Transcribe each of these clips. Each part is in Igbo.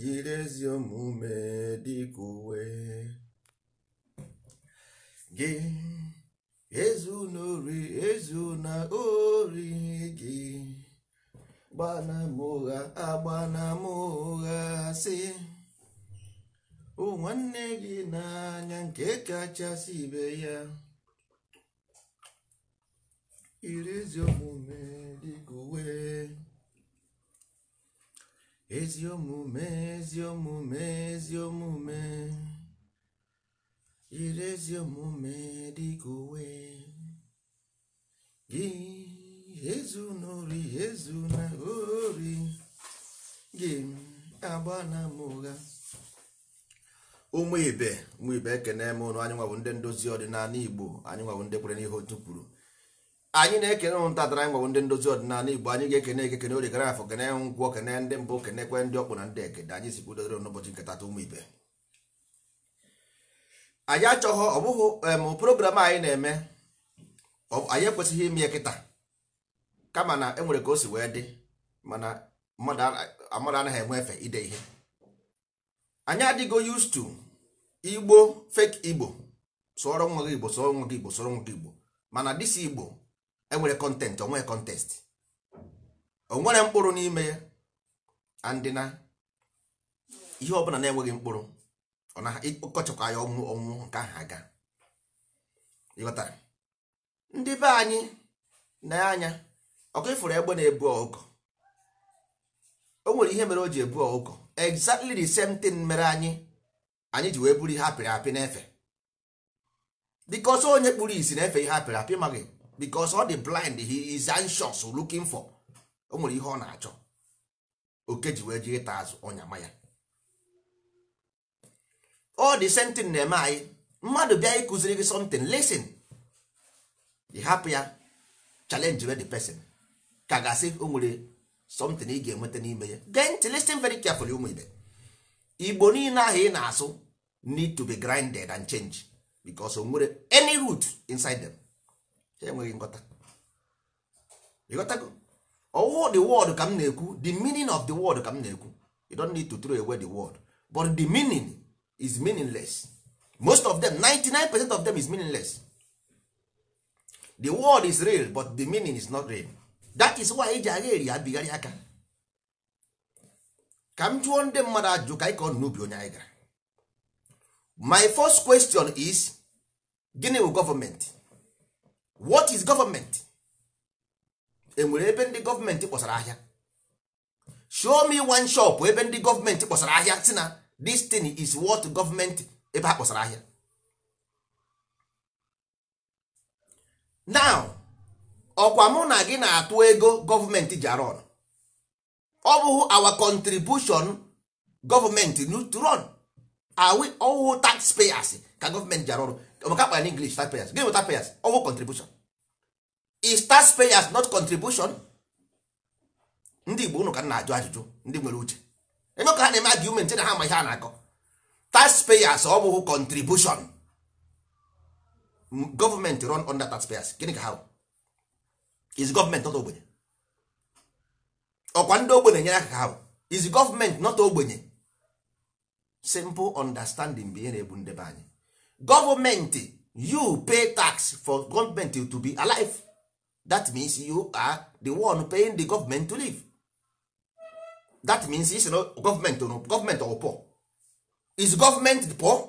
jiri ezi omume dịka uwe gị ezu na ori ezu na ori gị gbana m ụgha agbana m nwanne gị n'anya nke kachasị ibe ya iri ezi omume dịka uwe ezi omume ezi omume ezi omume yiri ezi omume dịka uwe gị ezu n'ori ezu na ori gị agba na mụgha ụmụ ibe ụmụ ibe ekene m ụnụ anyị nwabụ ndị ndozi ọdịnala igbo anyị nwabụ ndị kwere n'ihe otu kwuru anyị na-ekene ụntatara anyị ndị ndozi ọdịnala igbo anyị ga-ekene ekekene ori gara afọ kene ngwọ kene ndị mbụ kenekwe ndị ọkpụ na ndị ekede anyị si kwudodere n'ụbọchị nkata ụmụ ibe anyị achọghọ ọ bụghị program anyị na-eme anyị ekwesịghị ime kịta kama na enwere ka o si wee dị mana mmadụ anaghị enwe efe ide ihe anyị adịgo yustu to igbo fake igbo sọrọ nwa gị igbo sọrọ nwa gị igbo sọrọ nwa gị igbo mana dịsi igbo enwere kọntentị onwe kọntest nwere mkpụrụ n'ime ya andịna ihe ọbụla na-enweghị mkpụrụ ọ na ọkọchịkwa ya ọnwụ ọnwụ nke ahụ aga ịghọta ndị be anyị na-anya ọkụ ifuru egbe na-ebu ọkụkọ o nwere ihe mere o ji ebu ọkụkọ exactly the same thing mere anyị anyị ji wee buru ihe apịrị apị n'efe because onye kpụrụ isi na-efe ihe apịrị apị maghị because all dị blind he is anxious looking for o nwere ihe ọ na-achọ oke ji wee ji ịta azụ ọnyama ya ọ dị same na-eme anyị mmadụ bịa ịkụziri gị something listen ị hapụ ya challenge with di person ka gasị o nwere something ị ga-enweta n'ime ya gee ntị listen very carefully ụmụ igbo niile ahụ ị na-asụ need to be grinded and changed because o nwere any root inside them. enweghị nghọta ịghọtago ọwụwụ the word ka m na-ekwu the meaning of the word ka m na-ekwu you don't need to throw away the word but the meaning is meaningless most of them 99 percent of them is meaningless the word is real but the meaning is not real that is why eji agha eri abigharị aka ka m jụọ ndị mmadụ ajụ ka anyị ka n'ubi onye anyị gara my first question is gịnị bụ gọọmenti what is government enwere ebe ndị gọọmenti kpọsara ahịa show me one shop ebe ndị gọọmenti kpọsara ahịa si na this thing is what gọọmenti ebe ha kpọsara ahịa now ọkwa mụ na gị na-atụ ego gọọmenti ji ọ bụghị our contribution gọọmenti to run are we all payers ka gọọmenti ji maka akpa english start payers gịnị wụta payers ọwụ contribution is tax payers not contribution ndị igbo unu ka na-ajụ ajụjụ ndị nwere uche eme ka ha na-eme argument na ha ma ihe a na-akọ tax payers ọ bụghị contribution Government run under tax payers gịnị ka ha is government not ogbenye ọkwa ndị ogbenye nyere aka ka ha is government not ogbenye simple understanding bụ ihe na-ebu ndebe anyị gọọmenti you pay tax for gọọmenti to be alive that means you are the one paying the government to live that means is no government no government or poor is government poor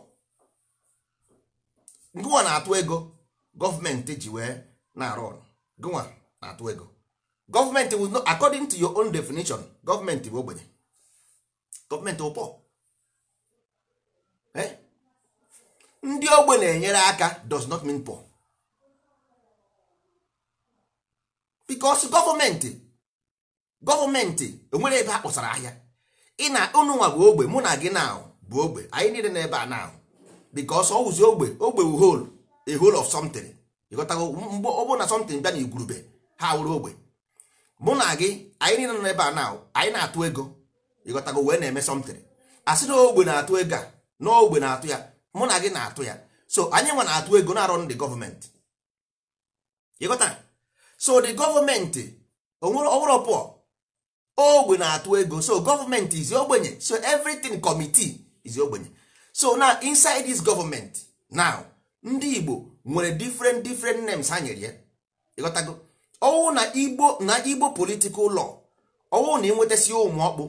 gụnwa na-atụ ego gọọmenti ji wee eh? na-arụ ọrụ gụnwa na-atụ ego gọọmenti will not according to your own definition gọọmenti bụ ogbenye gọọmenti bụ poor eh ndị ogbe na-enyere aka does not mean poor because gọọmenti gọọmenti onwere e ebe a kpọsara ahịa ị na ụnụnwa bụ ogbe mụ na gị na bụ ogbe anyị niile na-ebe a na because ọ wụzi ogbe ogbe wu hol a hole of something ịghọtago mgbe ọ na something bịa na igwurube ha wụrụ ogbe mụ na gị anyị niile nọ ebe a na anyị na-atụ ego ịghọtago wee na-eme something asị na ogbe na-atụ ego a na ogbe na-atụ ya mụ na gị na-atụ ya so anyị nwa na-atụ ego na-arụ ndị gọọmenti ịghọtara so the gọọmenti ọwụrụ pụọ ogbe na-atụ ego so gọọmenti is ogbenye so everything committee is ogbenye so na inside this government now ndị Igbo nwere different different names ha nyere ya ịghọtago ọwụ na Igbo na Igbo political law ọwụ na ịnwetasi ụmụ ọkpụ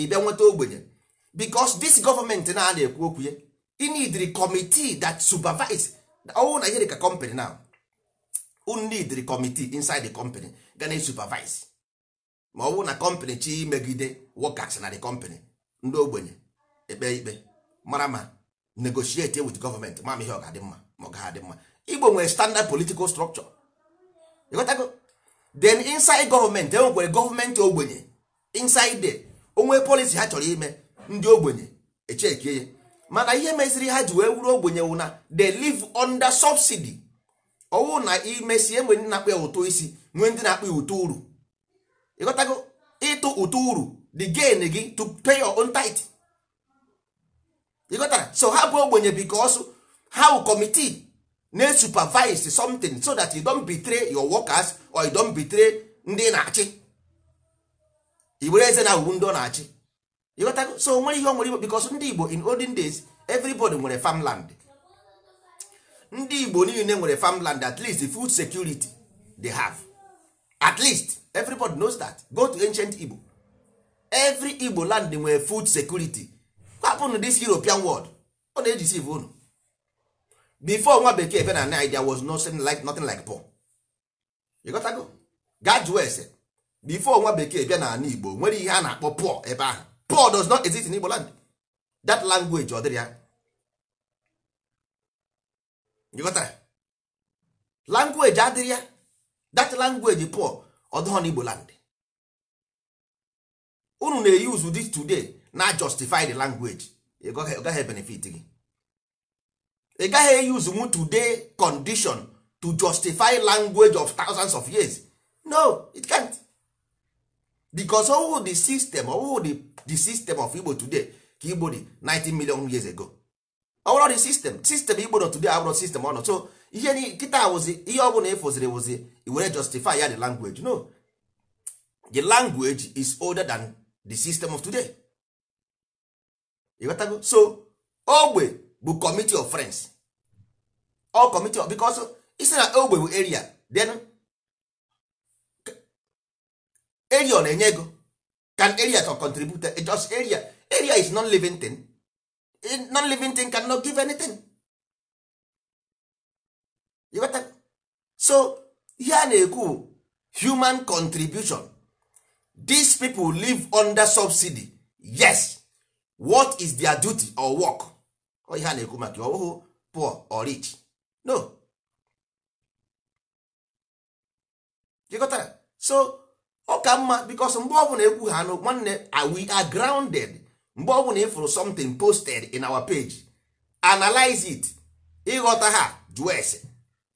ị bịa nweta ogbenye because this gọọmenti na-ana ekwu okwu ya you committee that supervise ọwụ na ihe ka company now you committee inside the company ga na supervise ma ọwụ na company chi megide workers na the company ndị ogbenye ekpe ikpe mara ma negotiate with government ma ihe ọ ga-adị mma ma ọ ga-adị mma igbo nwere standard political structure ịghọtago then inside government enwekwere gọọmenti ogbenye inside the onwe policy ha chọrọ ime ndị ogbenye echekie ya mana ihe meziri ha ji wee wuru ogbenyewu na they live under subsidy ọwụ na imesi enwe ndị na-akpọ ya ụtụ isi ndị na-akpọ ya ụtụ uru ịghọtago ịtụ ụtụ uru the gain gị to pay your own tithe ịghọtara so ha bụ ogbenye because how committee na-supervise something so that you don't betray your workers or you don't betray ndị na-achị i eze na uru ndị ọ na-achị ịghọtago so nwere ihe o nwere igbo because ndị igbo in olden days everybody nwere farmland ndị igbo niile nwere farmland at least food security they have at least everybody knows that go to ancient igbo every igbo land nwere food security kwapụnụ this european world ọ na-eji siv unu before nwa bekee bịa na nigeria was nothing like, nothing like poor ịghọtago gaa jụọ ese before nwa bekee bịa na ala igbo nwere ihe a na-akpọ poor ebe ahụ poor does not exist in Igbo land that language ọ dịrị ya ịghọtara language adịrị ya that language poor ọ dịghọ n'Igbo land unu na-use this today na justify the language ị gaghị benefit gị ị gaghị use mu today condition to justify language of thousands of years no it can't. because ọwụ the system ọwụ the, the system of igbo today ka igbo dị 19 million years ago ọwụrụ the system system igbo nọ today abụrụ system ọ nọ so ihe nkịta wụzi ihe ọ bụla ịfụziri e wụzi were justify ya the language no the language is older than the system of today ịghọtago so ogbe bụ committee of friends all committee of because isi na ogbe bụ area then area ọ na-enye ego can area can contribute just area area is non living thing non living thing cannot give anything you better so ihe a na-ekwu human contribution these people live under subsidy yes what is their duty or work ọ ihe a na-ekwu maka ọhụụ poor or rich no you that so ọ ka mma because mgbe ọbụla ekwu ha nụ nwanne we are grounded mgbe ọbụla ịfụrụ something posted in our page analyze it ịghọta ha jụọ ese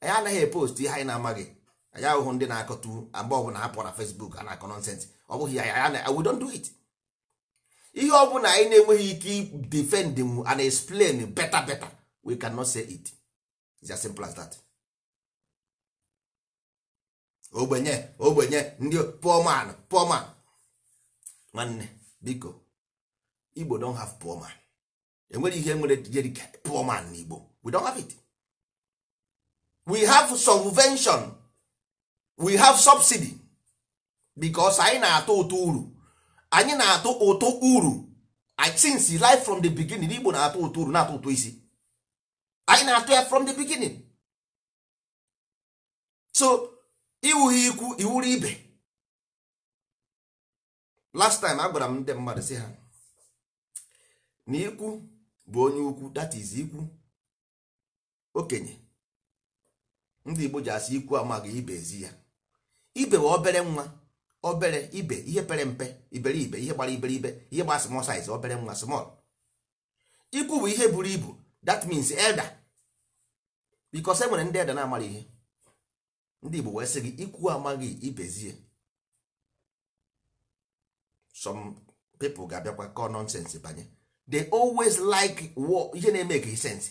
anyị anaghị epost ihe anyị na-amaghị anya ahụhụ ndị na-akọtu mgbe ọbụla ha pụọ na Facebook a na-akọ nonsense ọ bụghị ya we don't do it ihe ọbụla anyị na-enweghị ike defend and explain better better we cannot say it it's as simple as that. ogbenye ogbenye ndị poor man poor man nwanne biko igbo don have poor man enwere ihe nwere jerika poor man na igbo we don have it we have subvention we have subsidy because anyị na-atụ ụtụ uru anyị na-atụ ụtụ uru since life from the beginning igbo na-atụ ụtụ uru na-atụ ụtụ isi anyị na-atụ ya from the beginning so iwughi ikwu iwuru ibe last time a gwara m ndị mmadụ si ha na ikwu bụ onye ukwu that is ikwu okenye ndị Igbo ji asị ikwu amaghị ibe ezi ya ibe bụ obere nwa obere ibe ihe pere mpe iberibe ihe gbara iberibe ihe gbara small size obere nwa small ikwu bụ ihe buru ibu that means elder because e nwere ndị elder na-amara ihe ndị igbo wee sị gị ikwu amaghị ibezie some people ga-abịakwa kọọ nonsense banye they always like ihe na-emeke sense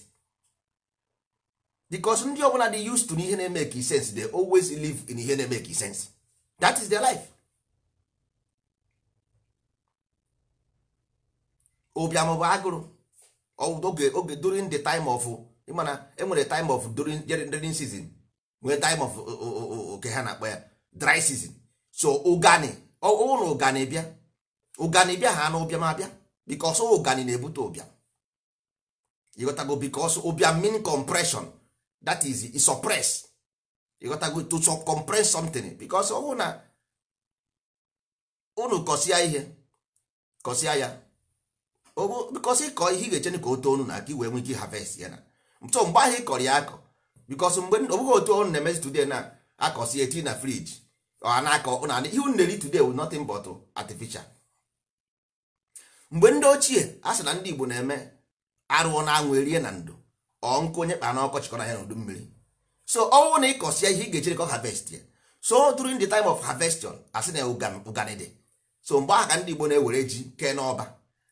because ndị ọbụla dị used to n'ihe na-emeke sense they always live in ihe na-emeke sense that is their life obiam bụ agụrụ oge during the time of ịmana enwere time of during rainy season nwee time of oke ha na-akpọ ya dry season so ụgani ụlọ ụgani bịa ụgani bịa ha na ụbịam abịa bikos ụgani na-ebute ụbịam ịghọtago bikos ụbịam mean compression that is e suppress ịghọtago to compress something bikos ọwụ na unu kọsịa ihe kọsịa ya bikos ịkọ ihe ị ga-echene ka o too unu na aka iwee nwee ike harvest ya na so mgbe ahụ ị ya akọ bikos mgbe ọ bụghị otu ọnụ na-emezi today na akọsi tii na friji na-akọ na ihe unu na-eri today wu notin but artificial mgbe ndị ochie a sị na ndị Igbo na-eme arụọ na anwụ erie na ndụ ọ nkụ onye kpa na ọkọchị kọrọ ya n'udu mmiri so ọnwụ na ịkọsia ihe ị ga-echere ka ọ harvest ya so during the time of harvestion asị na ụganịdị so mgbe ahụ ka ndị Igbo na-ewere ji kee n'ọba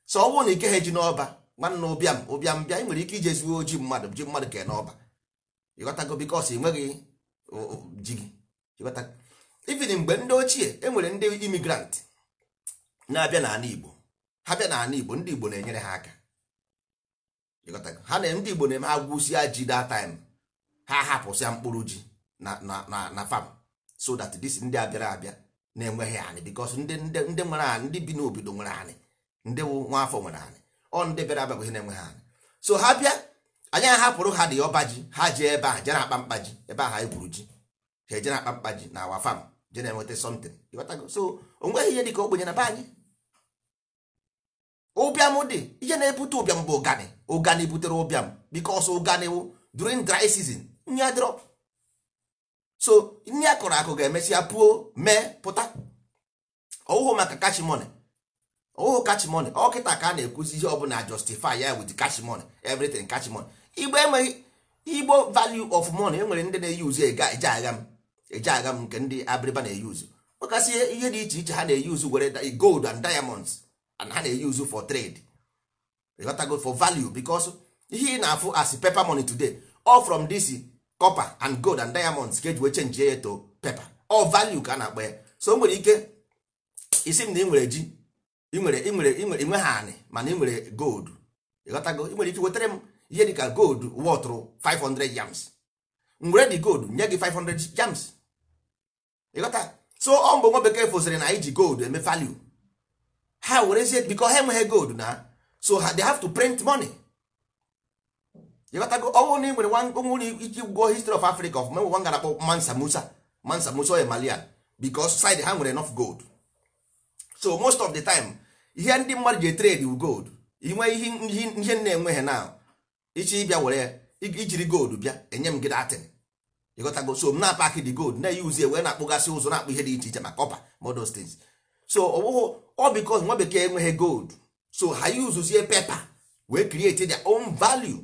so ọnwụ na ike ha ji n'ọba nwanne ụbịam ụbịam bịa ị nwere ike ijezigbo ji mmadụ ji mmadụ kee n'ọba ịghọtago bikos ị nweghị ji gị ịghọta mgbe ndị ochie e nwere ndị imigrant na-abịa n'ala igbo ha bịa n'ala igbo ndị igbo na-enyere ha aka ịghọtago ha na ndị igbo na-eme ha ji that time ha hapụsịa mkpụrụ ji na fam so that this ndị abịara abịa na-enweghị anị bikos ndị nwere anị ndị bi n'obodo nwere anị ndị nwa afọ nwere anị ọ ndị bịara abịa bụ ihe na-enweghị anị so ha bịa anyị ahapụrụ ha dị ọba ji ha ji ebe a je na-akpa mkpa ji ebe ahụ anyị gwuru ji ha eje na-akpa mkpa ji na awa fam je na-enweta something so o nweghị ihe ka ogbenye na be anyị ụbịam dị ihe na-ebute ụbịam bụ ụgani ụgani butere ụbịam bikos ụgani wụ during dry season nri dịrọ. so nri a kụrụ akụ ga-emesịa puo mee pụta ọwụhụ maka kachimone ọwụhụ kachimone ọ kịta ka a na-ekwuzi ihe ọbụla justify ya with kachimone everything kachimone igbo enweghị igbo value of money enwere ndị na-eyuzu eje agha m eje agha m nke ndị abịrịba na-eyuzu makasị ihe dị iche iche ha na-eyuzu were gold and diamonds and ha na-eyuzu for trade ịghọtago for value because ihe ị na-afụ as pepa money today all from dis copper and gold and diamonds ka eji wee chenji ya to pepa all value ka a na-akpọ ya so nwere ike isi m na ị nwere ji ị nwere ị nwere ị anị mana ị nwere gold ịghọtago ị nwere ike wetara m ihe dịka gold wọtụrụ 500 yams ngwere dị gold nye gị 500 yams ịghọta so ọ mbụ nwa bekee fosịrị na iji ji gold eme value ha werezie bikọ ha enweghị gold na so ha they have to print money ịghọtago ọnwụ na ị nwere onwere ike gwụọ history of africa of menwe nwa akpọ mansa musa mansa musa oye malia because side ha nwere enough gold so most of the time ihe ndị mmadụ ji trade wu gold inwe ihe ihe na-enweghị now ichi bịa were ya ijiri gold bịa enye m gị datin ịghọtago so m na-apakị dị gold na-eyuzi wee na-akpụgasị ụzọ na-akpụ ihe dị iche iche ma kọpa modos things so ọbụghụ ọ nwa bekee enweghị gold so ha yuzuzie pepa wee create their on value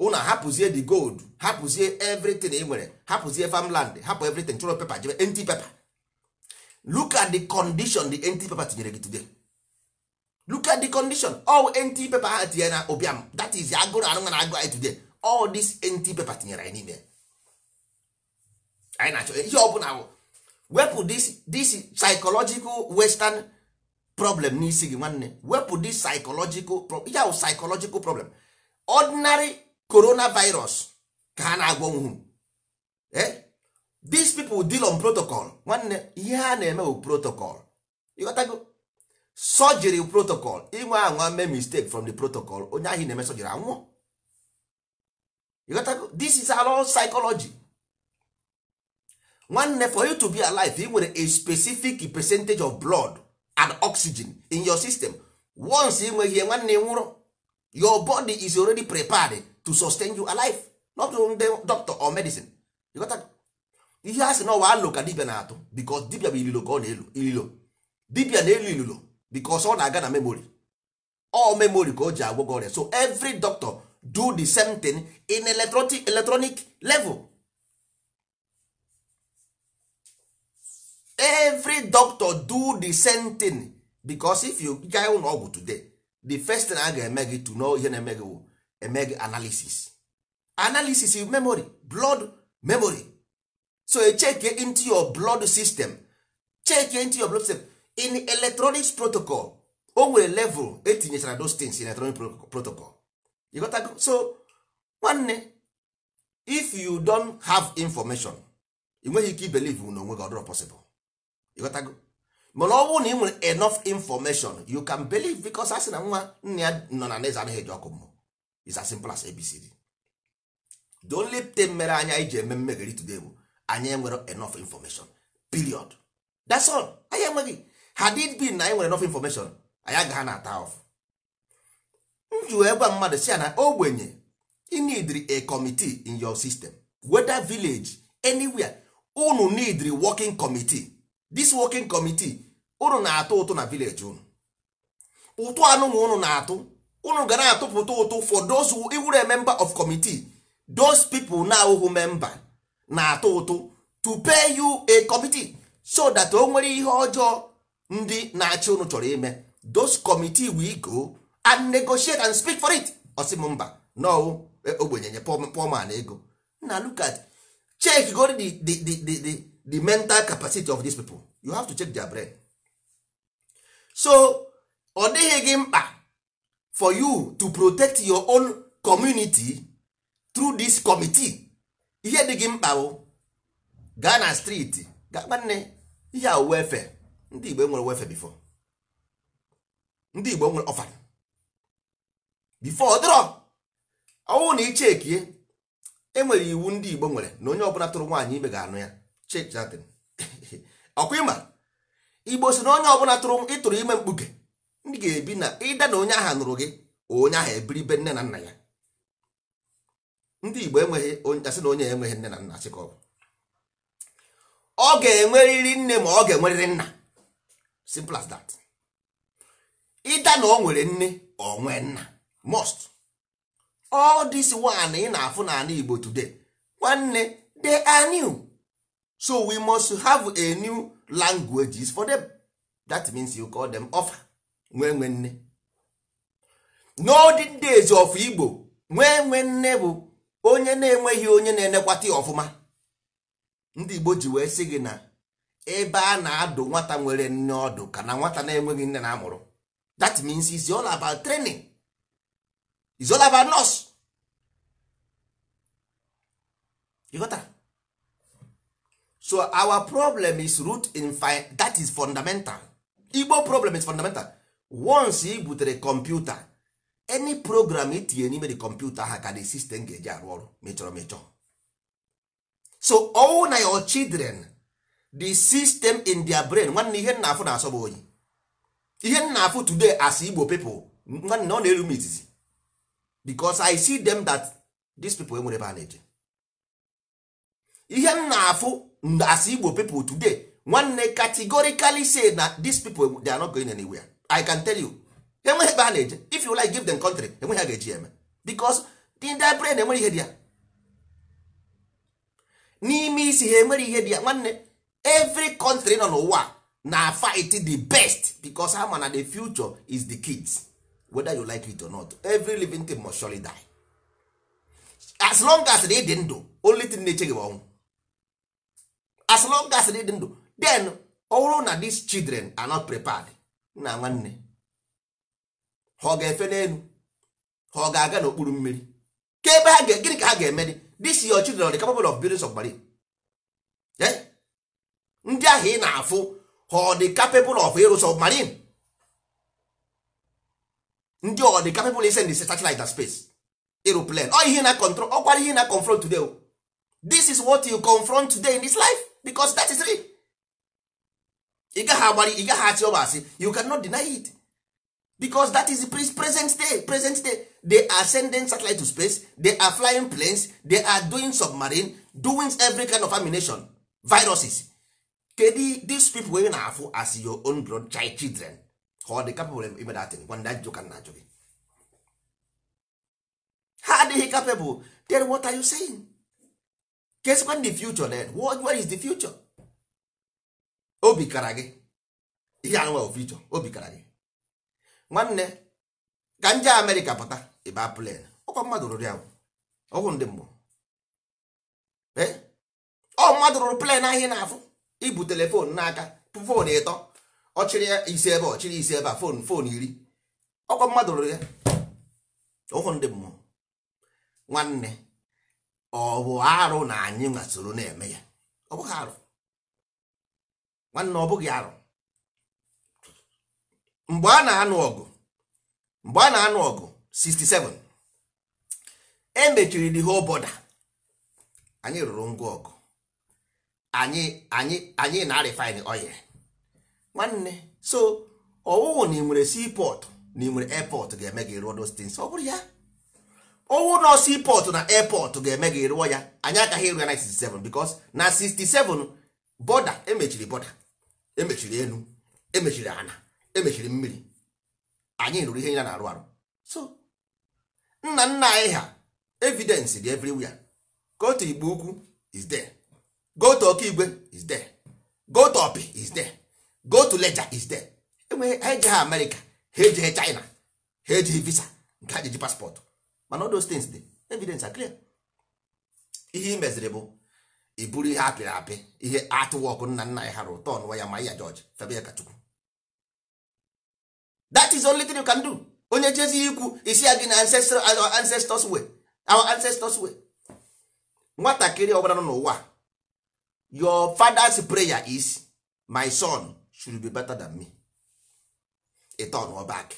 ụna hapụzie the gold hapụzie everything ị e nwere hapụzie farmland hapụ everything chọrọ pepa jebe enti pepa look at the condition the empty pepa tinyere gị today look at the condition all nt paper ha tinyere na ụbịam that is agụrụ arụ na agụ today all this nt paper tinyere anyị n'ime anyị na-achọ ihe ọbụla wụ wepụ this this psychological western problem n'isi gị nwanne wepụ this psychological problem ya psychological problem ordinary coronavirus ka ha na-agwọ nwụ eh these people deal on protocol nwanne ihe ha na-eme bụ protocol ịghọtago surgery protocol inwe anwa mee mistake from the protocol onye ahụ na-eme surgery anwụọ this is all psychology nwanne for you to be alive nwere a specific percentage of blood and oxygen in your system once inweghị nweghị nwanne nwụrụ your body is already prepared to sustain you alive not only doctor or medicine ihe a sị na ọwa alụ ka dibia na-atụ because dibia bụ ililo ka ọ na-elu ililo dibia na-elu ililo because ọ na-aga na memory all memory ka o ji agwọ ọrịa so every doctor do the same thing in electronic, level every doctor do the same thing because if you gaa ụlọ ọgwụ today the first thing a ga-eme gị to know ihe na-eme gị eme gị analysis analysis is memory blood memory so e check into your blood system check into your blood system in electronics protocol o nwere level etinyechara those things in electronic protocol you got to so nwanne if you don have information you nweghị ike ibelive na onwe gị possible you got to mana ọ bụrụ na ị nwere enough information you can believe because asị na nwa nna ya nọ na neze anaghị eji ọkụ is as simple as abcd the only thing mere anya anyị ji eme mmegharị today bụ anyị enwere enough information period that's all anyị enweghị had it been na anyị nwere enough information anyị agaghị na ata off m ji wee mmadụ si ya na ogbenye inidri a committee in your system whether village anywhere unu needri working committee this working committee unu na-atụ ụtụ na village unu ụtụ anụnụ unu na-atụ unu ga na-atụpụta ụtụ for those who iwere member of committee those people na awụhụ member na-atụ ụtụ to pay you a committee so that o nwere ihe ọjọọ ndị na-achị unu chọrọ ime those committee we go and negotiate and speak for it ọsị mba no e, ogbenye nye pọman ego na look at check go the, the, the, the, the mental capacity of these people you have to check their brain so ọ dịghị gị mkpa for you to protect your own community through this committee ihe dị gị mkpa bụ gaa na street ga ihe awuwe efe ndị Igbo enwere wefe bifo ndị Igbo nwere ọfala bifo ọdịrọ ọnwụ na ichekie enwere iwu ndị Igbo nwere na onye ọbụla tụrụ nwaanyị ime ga-anụ ya chechadịn ọkwa ịma Igbo si na onye ọbụla tụrụ ịtụrụ ime mkpuke ndị ga-ebi na ịda na onye ahụ nụrụ gị onye ahụ ebiri be nne na nna ya ndị Igbo enweghị onye asị na onye enweghị nne na nna sị ka ọ bụ ọ ga-enwerịrị nne ma ọ ga-enwerịrị nna simple as that ịda na o nwere nne onwe nna most all this one ị na-afụ n'ala Igbo today nwanne they are new so we must have a new languages for them that means you call them offer nwee nwe nne n'olden days of Igbo nwee nwe nne bụ onye na-enweghị onye na-enekwata ọfụma ndị Igbo ji wee sị gị na ebe a na-adụ nwata nwere nne ọdụ ka na nwata na-enweghị nne na-amụrụ that means it's all about training it's all about nurse ịghọtara so our problem is root in fine that is fundamental igbo problem is fundamental once you butere kọmputa any program itinye n'ime the computer ha ka the system ga-eji arụ ọrụ mechọrọ mechọ so all na your children the system in their brain nwanne ihe nna afụ na-asọ bụ onye ihe nna afụ today as igbo people nwanne ọ na-eru m izizi because i see them that these people enwere ebe a na-eje ihe nna afụ as igbo people today nwanne categorically say na these people they are not going anywhere i can tell you enweghị ebe a na-eje if you like give them country enweghị a ga-eji eme because the their brain enwere ihe dị ya n'ime isi ha enwere ihe dị ya nwanne every country nọ n'ụwa na fight the best because ha ma na the future is the kids whether you like it or not every living thing must surely die as long as they dey ndụ only thing na-eche gị ọnwụ as long as they dey ndụ then ọ na these children are not prepared na nwanne ha ọ ga-efe n'elu ha ọ ga-aga n'okpuru mmiri ka ebe ha gịnị ka ha ga-eme this your children are the capable of building submarine yeah? ndị ahụ ị na-afụ ọ dị capable of ịrụ submarine ndị ọ dị capable ise ndị satellite na space ịrụ plane ọ ihe na control kwa ihe na confront today this is what you confront today in this life because that is real ị gaghị agbari ị gaghị achị ọba asị you cannot deny it because that is the present day present day they are sending satellite to space they are flying planes they are doing submarine doing every kind of amination viruses kedu these people wey na-afụ as your own blood child children ha ọ dị capable ime datin gwa ndị ajụjụ ka ajụ gị ha adịghị capable then what are you saying kesikwa the future then what, is the future obi kara gị ihe anụnwa future obi kara gị nwanne ka nje amerịka pụta ịba plen ọkwa mmadụ rụrụ ya ọgwụ ndị mmụọ eh? ọ mmadụ rụrụ plen ahụ na-afụ ibu fon n'aka fon ịtọ ọchịrị ya isi ebe ọchịrị isi ebe a fon fon iri ọkwa mmadụ rụrụ ya ụhụ ndị mmụọ nwanne ọ bụ arụ na anyị nwa na-eme ya ọ bụghị arụ nwanne ọ bụghị arụ mgbe a na-anụ ọgụ mgbe a na-anụ ọgụ 67 emechiri mechiri the whole border anyị rụrụ ngwa ọgụ anyị anyị anyị na refine oil nwanne so ọwụwụ na ị nwere seaport na ị nwere ga-eme gị rụọ those things ọ bụrụ ya ọwụ nọ seaport na airport ga-eme gị rụọ ya anyị agaghị ịrụ ya na 67 because na 67 bọda emechiri bọda emechiri elu emechiri ana emechiri mmiri anyị rụrụ ihe ya na-arụ arụ so nna nna anyị ha evidence dị everywhere ka otu igbo ukwu is there go to Okigwe is there go to Opi is there go to Leja is there enweghị ha ejeghị Amerịka ha ejeghị China ha ejeghị visa nke ha jeji paspọtụ mana all those things dị evidence are clear ihe ị meziri bụ iburu ihe apịrị apị ihe atụwọkụ nna nna ya ha ụtọ n'ụwa ya ma ya George febe ya Kachukwu that is only thing you can do onye jezi ikwu isi ya gị na uh, ancestors way our ancestors way nwatakịrị ọbụla nọ n'ụwa your father's prayer is my son should be better than me a turn or back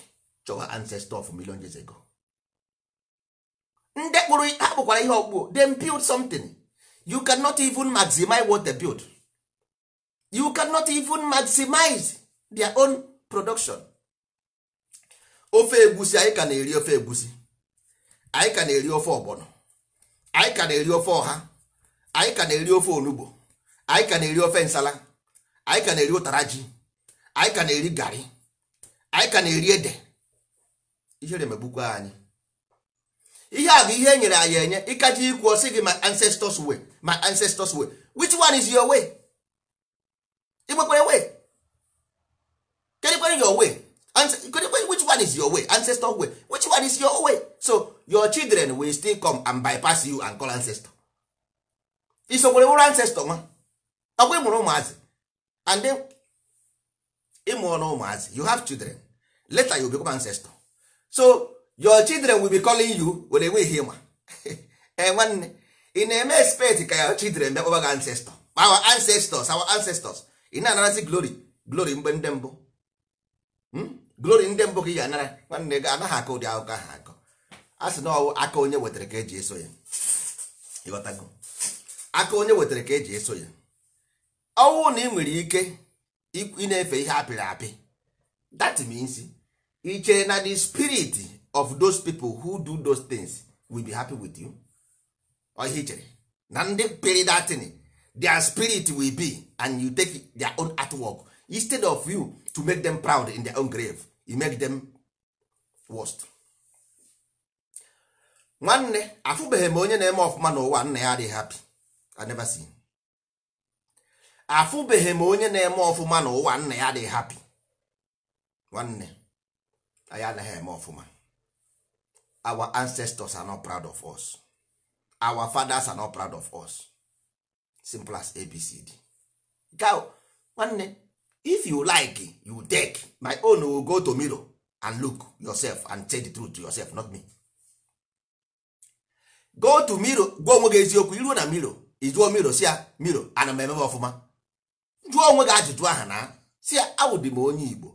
chọwa ancestor of million years ago ndị kpụrụ ha kpụkwara ihe ọkpụ dem build something you cannot even maximize what they build you cannot even maximize their own production ofe egusi anyị ka na-eri ofe egusi anyị ka na-eri ofe ọgbọnọ anyị ka na-eri ofe ọha anyị ka na-eri ofe onugbo anyị ka na-eri ofe nsala anyị ka na-eri ụtara ji anyị ka na-eri garị anyị ka na-eri ede ihere megbukwa anyị ihe a bụ ihe enyere nyere anyị enye ịkacha ikwu ọsị gị my ancestors way my ancestors way which one is your way igbekwere way kedukwere your way which one is your way ancestor way which one is your way so your children will still come and bypass you and call ancestor isokwere wụrụ ancestor nwa akwa ịmụrụ ụmụazị and ịmụọla ụmụazị you have children later you become ancestor so your children will be calling you were enweghị ịma ee eh, nwanne ị na-eme expect ka your children bịakpọba gị ancestor our ancestors our ancestors ị na-anarazi glory glory mgbe ndị mbụ hmm? glory ndị mbụ ka ị ga-anara nwanne gị anaghị akọ ụdị akụkọ ahụ akọ a sị na ọwụ aka onye wetara ka eji eso ya ịghọtago aka onye wetara ka eji eso ya ọnwụ na ị nwere ike ị na-efe ihe apịrị apị that means iche na the spirit of those people who do those things will be happy with you oihe ichere na ndị pịrị datin their spirit will be and you take their own artwork instead of you to make them proud in their own grave you make them worst nwanne afụbeghị m onye na-eme ọfụma n'ụwa nna ya adịghị happy I never see afụbeghị m onye na-eme ọfụma na ụwa nna ya dey hapi nwanne anyị anaghị eme ọfụma our ancestors are not proud of us our fathers are not proud of us simple as abcd gaw nwanne if you like you take my own will go to mirror and look yourself and tell the truth to yourself not me go to mirror gwa onwe gị eziokwu iruo na mirror ijuo mirror si ya mirror ana m emebe ọfụma jụọ onwe gị ajụjụ aha na si ya awụdị m onye igbo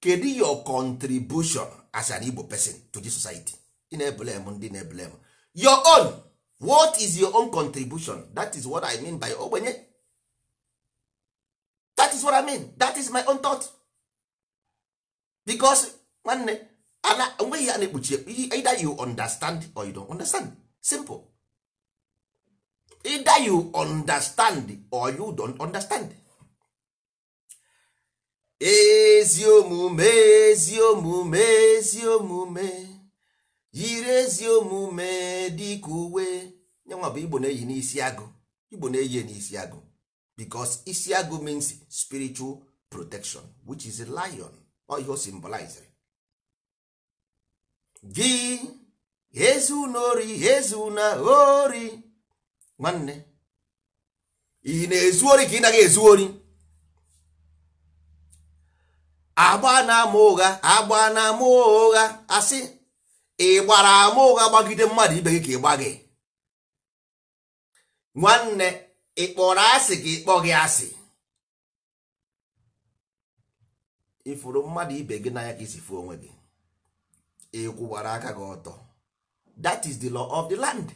kedu your contribution as an igbo pesin to the society ị na-ebele ndị na-ebele m your own what is your own contribution that is what i mean by ogbenye that is what i mean that is my own thought because nwanne ana onweghị ya na-ekpuchi either you understand or you don't understand simple either you understand or you don't understand ezi omume ezi omume ezi omume yiri ezi omume dịka uwe nyanwa igbo na-eyi n'isi agụ igbo na-eyi n'isi agụ because isi agụ means spiritual protection which is lion ọ ihe o ezi unori ezi una ori nwanne ị na-ezu ori ka ị naghị ezu ori agba na-ama ụgha agba na-ama ụgha asị ị gbara ama ụgha gbagide mmadụ ibe gị ka ị gba gị nwanne ị kpọrọ asị ka ị kpọ gị asị ifuru mmadụ ibe gị n'anya ka isi fuo onwe gị ị kwụwara aka gị ọtọ that is the law of the land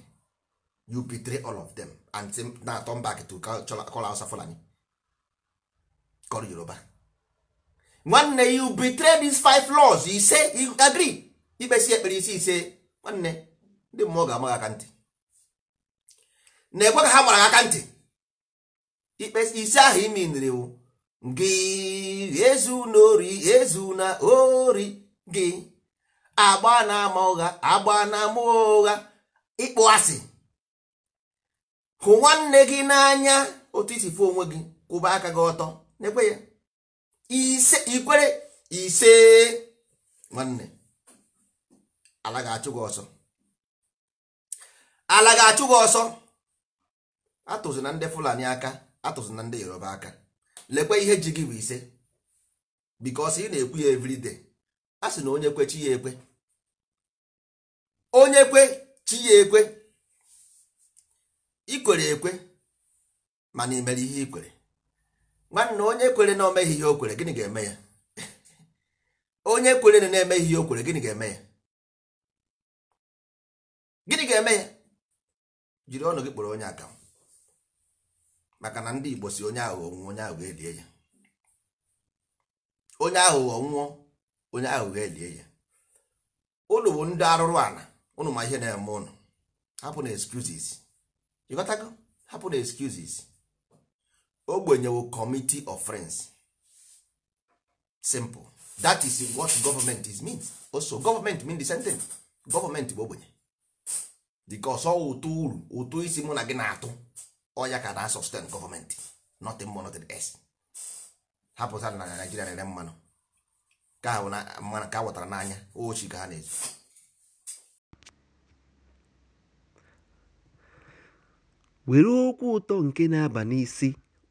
you betray all of them and na-atọ mba to call Fulani call Yoruba nwanne you betray these five laws ise agree ikpesi ekpere isi ise nwanne ndị mmụọ ga-ama aka ntị na-ekwe ka ha gbara aka ntị ikpesi ise ahụ imi nriwu gị ezu na ori ezu na ori gị agba na ama ụgha agba na ama ụgha ịkpụ asị hụ nwanne gị n'anya otu isi fụ onwe gị kwụba aka gị ọtọ na ya ise ikwere ise nwanne ala ga-achụ gị ọsọ ala ga-achụ gị ọsọ atụzụ na ndị fulani aka atụzụ na ndị yoruba aka lekwe ihe ji gị bụ ise bikos ị na-ekwu ya everyday a sị na onye kwe chi ya ekwe onye kwe chi ya ekwe ikwere ekwe mana imere ihe ikwere nwanne onye kwere na omeghi ihe o kwere gịnị ga-eme ya onye kwere na na-emeghị ihe o kwere gịnị ga-eme ya gịnị ga-eme ya jiri ọnụ gị kpọrọ onye aka maka na ndị Igbo si onye aghụghọ nwụọ onye aghụghọ elie ya onye aghụghọ nwụọ onye aghụghọ elie ya ụnụ bụ ndị arụrụ ala ụnụ ma ihe na-eme ụnụ hapụ na excuses ịghọtago hapụ na excuses ogbenyewo committee of friends simple that is what government is mean also government mean the same thing government bụ ogbenye because ọ ụtụ uru ụtụ isi mụ na gị na-atụ ọya ka na sustain government nothing more nothing else hapụta na naijiria na mmanụ ka a n'anya ochi ka ha na-ezu were okwu ụtọ nke na-aba n'isi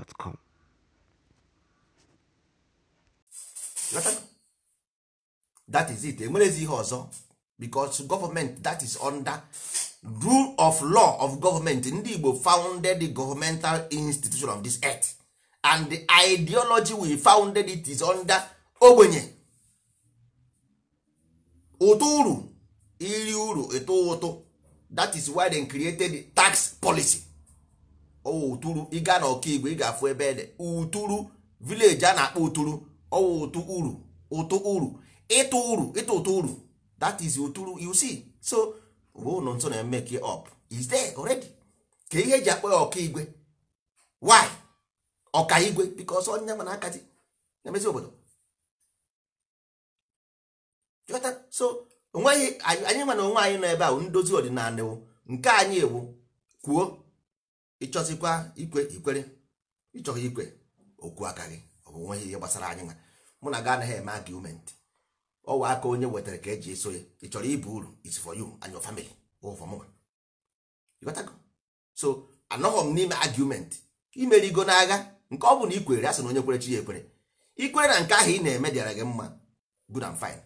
gmail.com. that is it enwerezi ihe ọzọ because government that is under rule of law of government ndị Igbo founded the governmental institution of this earth and the ideology we founded it is under ogbenye ụtụ uru iri uru eto ụtụ that is why they created the tax policy ụtụrụ ịga na ọkaigwe ị ga-afụ ebe dị ụtụrụ vileji a na-akpọ ụtụrụ ọwụ ụtụ uru ụtụ uru ịtụ uru ịtụ ụtụ uru that is ụtụrụ you see so bụ ụlọ nso na make up is there already ka ihe eji akpọ ya ọkaigwe why ọkaigwe because onye ma na-akazi na-emezi obodo so onweghị anyị nwa na onwe anyị nọ ebe ahụ ndozi ọdịnala ewu nke anyị ewu kwuo ịchọzikwa ikwe ikwere ịchọghị ikwe okwu aka gị ọbụ nweghị ihe gbasara anyị nwa mụ na gị anaghị eme agụmentị ọwa aka onye wetara ka eji eso ya ị chọrọ ibu uru is for you and your family so anọghọ m n'ime agụmentị imerigo n'agha nke ọ bụ na ikwere asị na onye kwere chi ya ekwere ikwere na nke ahụ ị na-eme dịara gị mma good and fine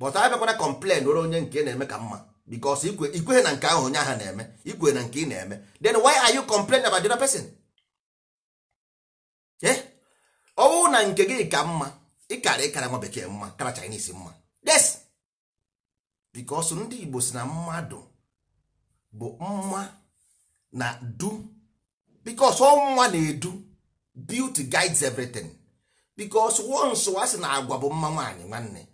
but abịakwana complain nwere onye nke na-eme ka mma because ikweghị na nke ahụ onye ahụ na-eme ikwe na nke ị na-eme then why are you complaining about the other person eh? ọ bụrụ na nke gị ka mma ịkara ịkara nwa bekee mma kara Chinese mma yes because ndị Igbo si na mmadụ bụ mma na du because ọnwa mma na-edu beauty guides everything because once a sị na agwa bụ mma nwaanyị nwanne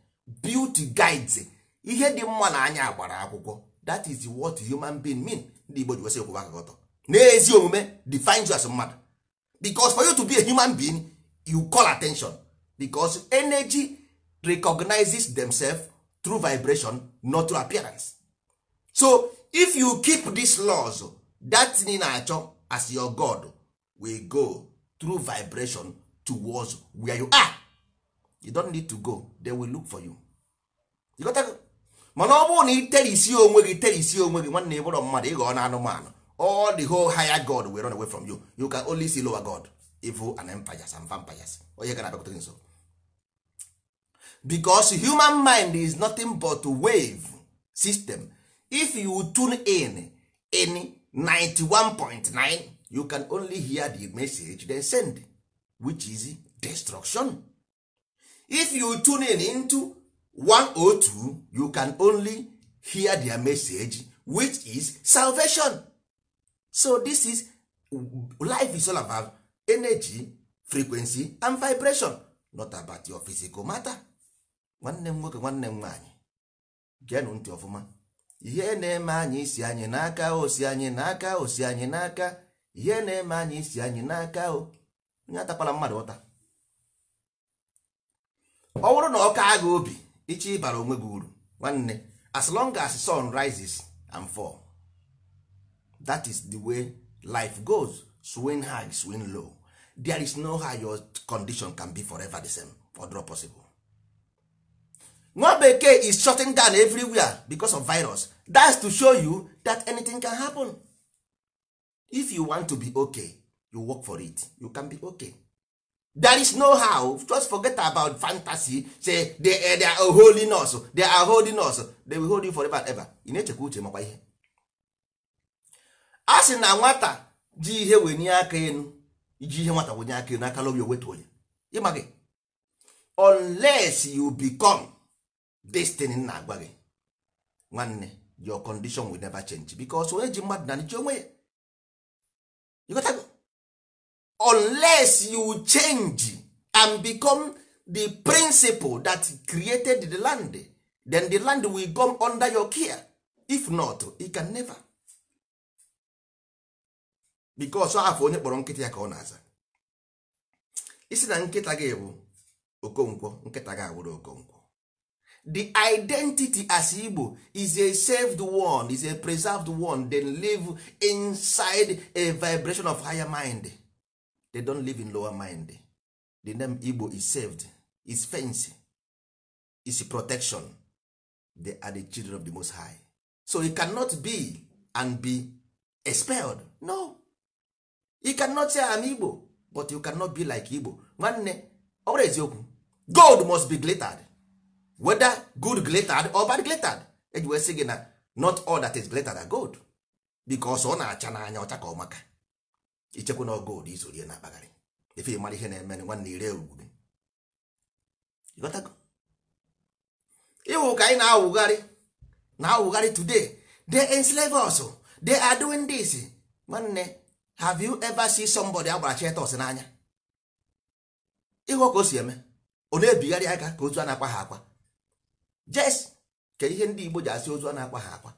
beauty guides ihe dị mma na anya gbara akwụkwọ that is what human being mean ndị Igbo ji wesị okwu aka n'ezi omume defines you as mmadụ because for you to be a human being you call attention because energy recognizes themselves through vibration not through appearance so if you keep these laws that thing na-achọ as your god will go through vibration towards where you are you don't need to go they will look for you. you got mana ọ bụrụ na ị isi onwe gị terisi onwe gị nwanne ịbụrụ mmadụ ịghọ na anụmanụ all the whole higher god will run away from you you can only see lower god evil and empires and vampires onye gara abịakwute nso because human mind is nothing but wave system if you tune in in 91.9 you can only hear the message they send which is destruction if you tune in into 102 you can only hear their message which is salvation so this is life is all about energy frequency and vibration not about your physical matter nwanne m nwoke nwanne m nwaanyị geenụ ntị ọfụma ihe na-eme anyị isi anyị n'aka osi anyị n'aka osi anyị n'aka ihe na-eme anyị isi anyị n'aka o onye atakwala mmadụ ụta ọ bụrụ na ọka agha obi ichi ịbara onwe gị uru as long as sun rises and fall that is the way life goes swing high swing low there is no how your condition can be forever the same or not possible nwa bekee is shutting down everywhere because of virus that's to show you that anything can happen if you want to be okay you work for it you can be okay there is no how just forget about fantasy say they, eh, are holy nurse they are holy nurse they will hold you forever and ever ị na-echekwa uche makwa ihe a sị na nwata ji ihe wenye aka enu iji ihe nwata wenye aka enu aka lobi wetuo ya ịma gị unless you become destiny na-agwa gị nwanne your condition will never change because onye ji mmadụ na nche onwe ya unless you change and become the principle that created the land then the land will come under your care if not it can never because afọ onye kpọrọ nkịta ya ka ọ na-aza isi na nkịta gị bụ okonkwo nkịta gị abụrụ okonkwo the identity as Igbo is a saved one is a preserved one then live inside a vibration of higher mind they don live in lower mind the name igbo is saved is fence is protection they are the children of the most high so he cannot be and be expelled no he cannot say am igbo but you cannot be like igbo nwanne always bụrụ eziokwu gold must be glittered whether good glittered or bad glittered eji wee sị gị not all that is glittered are gold because ọ na-acha n'anya ọcha ka ọ maka ichekwa na ọgụ ụdị izorie na akpagharị ife mara ihe na-eme nwanne ire ugwube ịwụ ka anyị na-awụgharị na-awụgharị today they enslave us they are doing this nwanne have you ever seen somebody agbara chetos n'anya ịhụ ka o si eme ọ na-ebigharị aka ka ozu a na-akwa ha akwa jes ka ihe ndị Igbo ji asị ozu a na-akwa ha akwa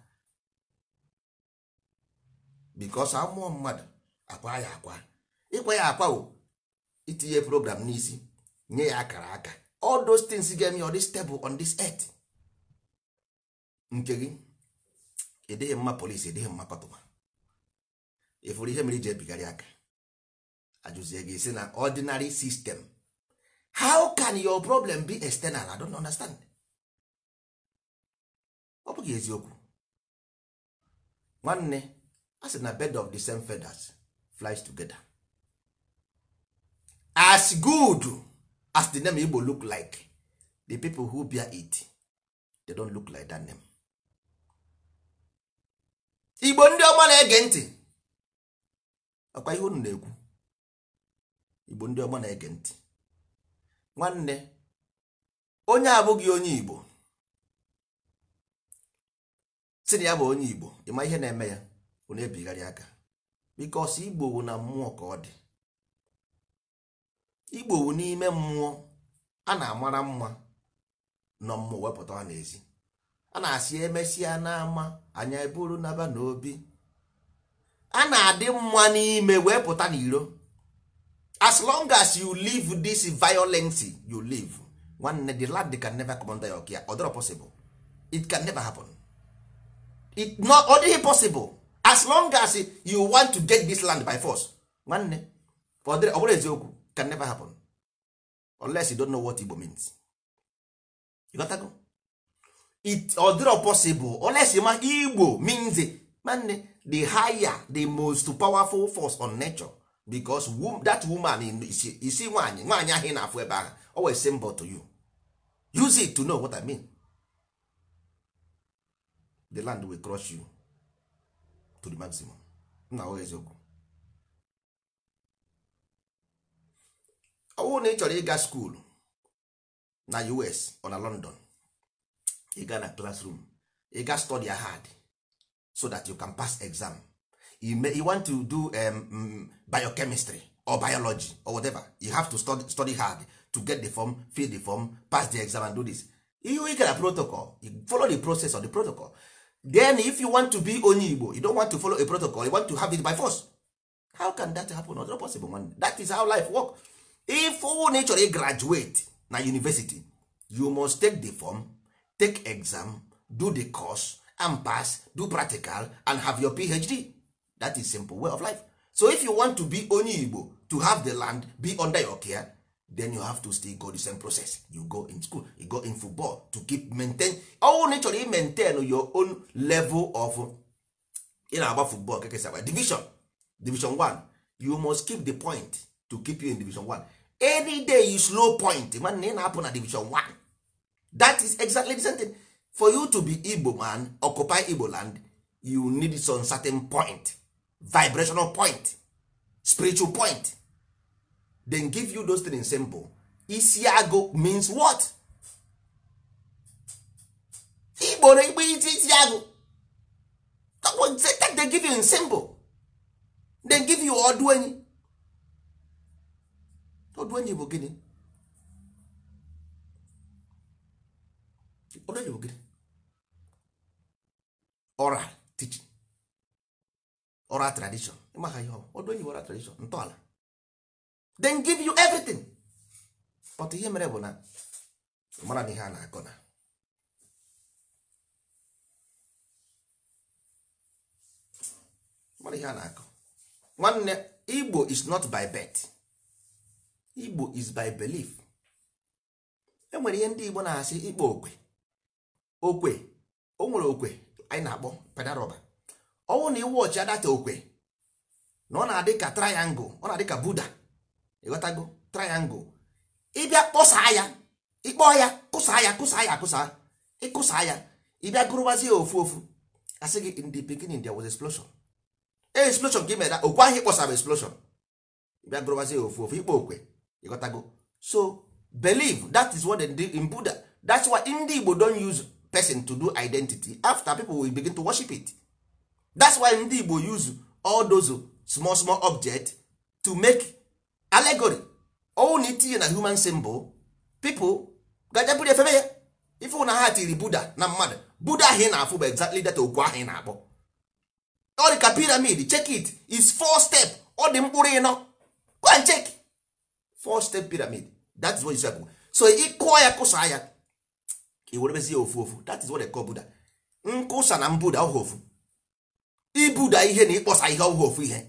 because amụọ mmadụ akwa ya akwa ịkwa ya akwa o itinye program n'isi nye ya akara aka all those things ga-eme on dị stable on this earth nke gị edeghị mma polisi edeghị mma patụma ịfụrụ ihe mere iji ebigharị aka ajụzie gị si na ordinary system how can your problem be external i don't understand ọ bụghị eziokwu nwanne a sị na bed of the same feathers flies together as good as the name igbo look like the people who bear it they don't look like that name igbo ndị ọma na-ege ntị ọkwa ihe unu na-ekwu igbo ndị ọma na-ege ntị nwanne onye abụghị onye igbo si na ya bụ onye igbo ịma ihe na-eme ya na ebigharị aka bikos igbowu na mmụọ ka ọ dị igbowu n'ime mmụọ a na-amara mma nọ mmụọ wepụta ha n'ezi a na-asị emesịa n'ama anya eburu naba n'obi a na-adị mma n'ime wee pụta as long as you live this violence you live nwanne the lad can never come under your care ọ dịrọ possible it can never happen it not ọ possible as long as you want to get this land by force nwanne ọ bụrụ eziokwu can never happen unless you don't know what Igbo means you got go? it odiro possible unless ma Igbo means nwanne the higher the most powerful force on nature because that woman isi see nwaanyị nwanyi ị na-afụ ebe ahụ always symbol to you use it to know what I mean the land will crush you to the maximum nna ọ eziokwu ọ bụrụ na ị chọrọ ịga skuulu na US ọ na London ịga na classroom ịga study hard so that you can pass exam you, want to do um, mm, biochemistry or biology or whatever you have to study, study hard to get the form fill the form pass the exam and do this ihe ị gara protocol you follow the process of the protocol then if you want to be onye igbo you don't want to follow a protocol you want to have it by force how can that happen not possible man that is how life work if na ị chọrọ graduate na university you must take the form take exam do the course and pass do practical and have your phd that is simple way of life so if you want to be onye igbo to have the land be under your care then you have to still go the same process you go in school you go in football to keep maintain all na ị chọrọ maintain your own level of ị na-agba football kake sabi division division 1 you must keep the point to keep you in division 1 any day you slow point imagine ị na-apụ na division 1 that is exactly the same thing for you to be Igbo man occupy Igbo land you need some certain point vibrational point spiritual point then give you those things simple isiago means what igboro igbe iti isiago they give you in simple they give you ọdụenyi ọdụenyi bụ gịnị ọdụenyi bụ gịnị oral teaching oral tradition ịmaha ihe ọdụenyi bụ oral tradition ntọala then give you everything but ihe mere bụ na mara ihe a na-akọ na mara ihe a na-akọ nwanne igbo is not by birth igbo is by belief enwere ihe ndị igbo na-asị ikpo okwe okwe o nwere okwe anyị na-akpọ pedaroba ọnwụ na iwe ọchị adata okwe na ọ na-adị ka triangle ọ na-adị ka buda ịghọtago triangle ịbịa kpọsaa ya ịkpọ ya kụsaa ya kụsaa ya akụsa ịkụsaa ya ịbịa ya ofu ofu asị gị in the pikin India was explosion e, explosion ka ị mere ahụ ịkpọsara explosion ịbịa gụrụwazi ya ofu ofu ịkpọ okwe ịghọtago so believe that is what they do in Buddha that's why ndị Igbo don use person to do identity after people will begin to worship it that's why ndị Igbo use all those small small objects to make allegory ọnwụ na itinye na human symbol people gajaburu efebe ya ife na ha tiri buda na mmadụ buda ahụ ị na-afụ bụ exactly data okwu ahụ ị na-akpọ ọrịka pyramid check it is four step ọ dị mkpụrụ ịnọ go and check four step pyramid that is what is happening so ị kụọ ya kụsa ya i werebezi ya ofu ofu that is what they call buda nkụsa na mbuda ọhụ ofu ibuda ihe na ịkpọsa ihe ọhụ ofu ihe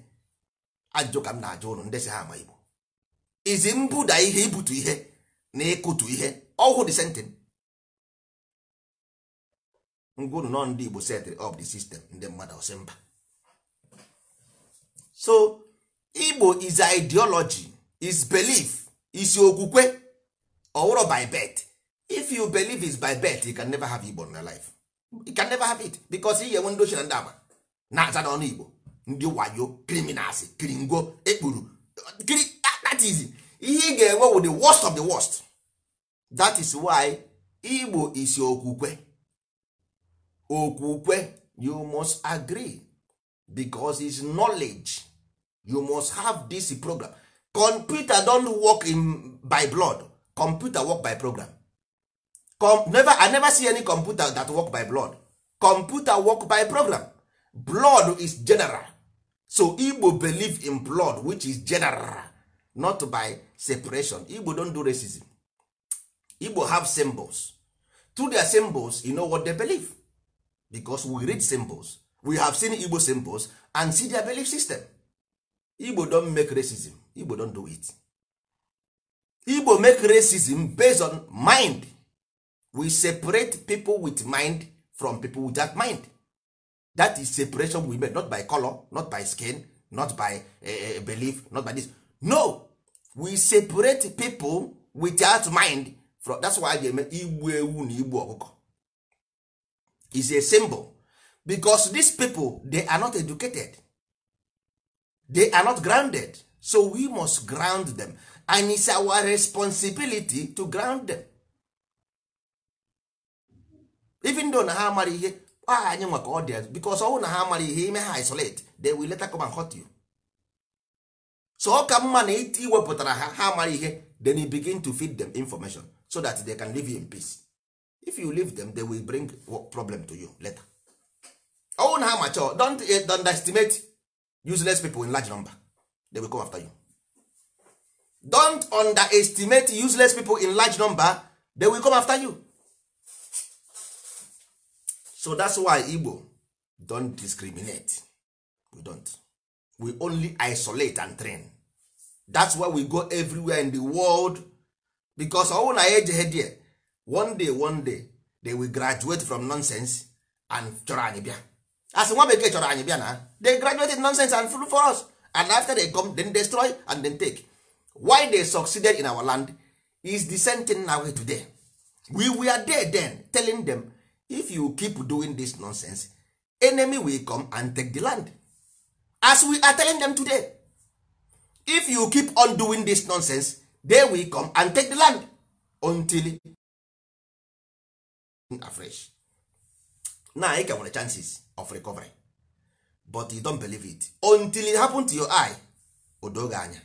ajụjụ ka m na-ajụ ụnụ ndị si ha ama igbo izi mbuda ihe ibutu ihe na ịkụtu ihe ọhụụ the same thing ngwunu nọ ndị Igbo set up the system ndị mmadụ ọsị mba so Igbo is ideology is belief is okwukwe ọwụrụ by birth if you believe is by birth you can never have Igbo in your life you can never have it because ihe nwe ndị ochie na ndị agba na-aza n'ọnụ Igbo ndị wayo criminals kiringo ekpuru Ah, that is ihe ị ga-enwe wụ the worst of the worst that is why igbo is okwukwe okwukwe you must agree because is knowledge you must have this program computer don't work in by blood computer work by program Com never, i never see any computer that work by blood computer work by program blood is general so igbo believe in blood which is general not by separation igbo don do racism igbo have symbols through their symbols you know what they believe because we read symbols we have seen igbo symbols and see their belief system igbo don make racism igbo don do it igbo make racism based on mind we separate people with mind from people without mind that is separation we make not by color not by skin not by uh, belief not by this no we separate people without mind from that's why they make igbu ewu na igbu ọkụkọ is a symbol because these people they are not educated they are not grounded so we must ground them and it's our responsibility to ground them even though na ha amara ihe aha anyị nwa ka ọ dị because ọnwụ na ha mara ihe ime ha isolate they will later come and hurt you so ọ ka mma na iwepụtara ha ha mara ihe then you begin to feed them information so that they can leave you in peace if you leave them they will bring problem to you later ọnwụ na ha mature don't eh, underestimate useless people in large number they will come after you don't underestimate useless people in large number they will come after you so that's why igbo don't discriminate we don't we only isolate and train that's why we go everywhere in the world because ọnwụ na ya ejeghe there one day one day they will graduate from nonsense and chọrọ anyị bịa asị nwa bekee chọrọ anyị bịa na they graduated nonsense and full for us and after they come then destroy and then take why they succeeded in our land is the same thing now today we were there then telling them if you keep doing this nonsense enemy will come and take the land as we are telling them today if you keep on doing this nonsense they will come and take the land until afresh now ị get nwere chances of recovery but you don't believe it until it happen to your eye odoge anya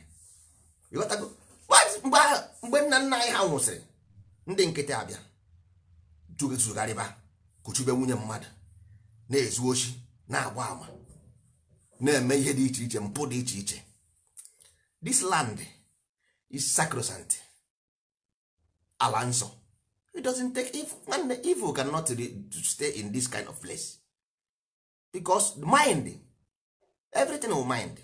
ịghọtago mgbe nna nna anyị ha nwụsịrị ndị nkịtị abịa riba. kụchube nwunye mmadụ na-ezu ochi na-agba ama na-eme ihe dị iche iche mpụ dị iche iche this land is sacrosanct ala nsọ it doesn't take if nwanne evil cannot to stay in this kind of place because mind everything will mind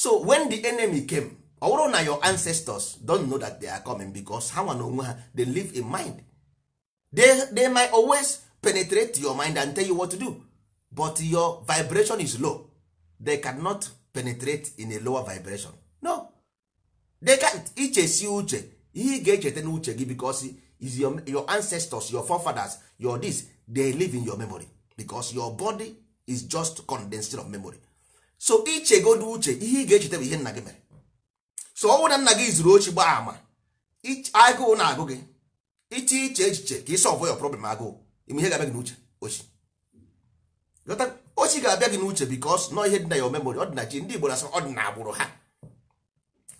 so when the enemy came ọ bụrụ na your ancestors don know that they are coming because ha nwa na onwe ha they live in mind they, they might always penetrate your mind and tell you what to do but your vibration is low they cannot penetrate in a lower vibration no they can't ichesi uche ihe ị ga-echeta n'uche gị because is your, your ancestors your forefathers your this they live in your memory because your body is just condensed of memory so ichegodo uche ihe ị ga-echeta bụ ihe nna gị mere so ọnwụ na nna gị zuru ochi gbaa ama agụụ na-agụ gị iche iche echiche ka ị sọlvụ ya problem agụụ ime ihe ga-abịa gị n'uche ochi ochi ga-abịa gị n'uche bikos nọ ihe dị na ya omemori ọdịnachi ndị igbo na-asị ọ dị na agbụrụ ha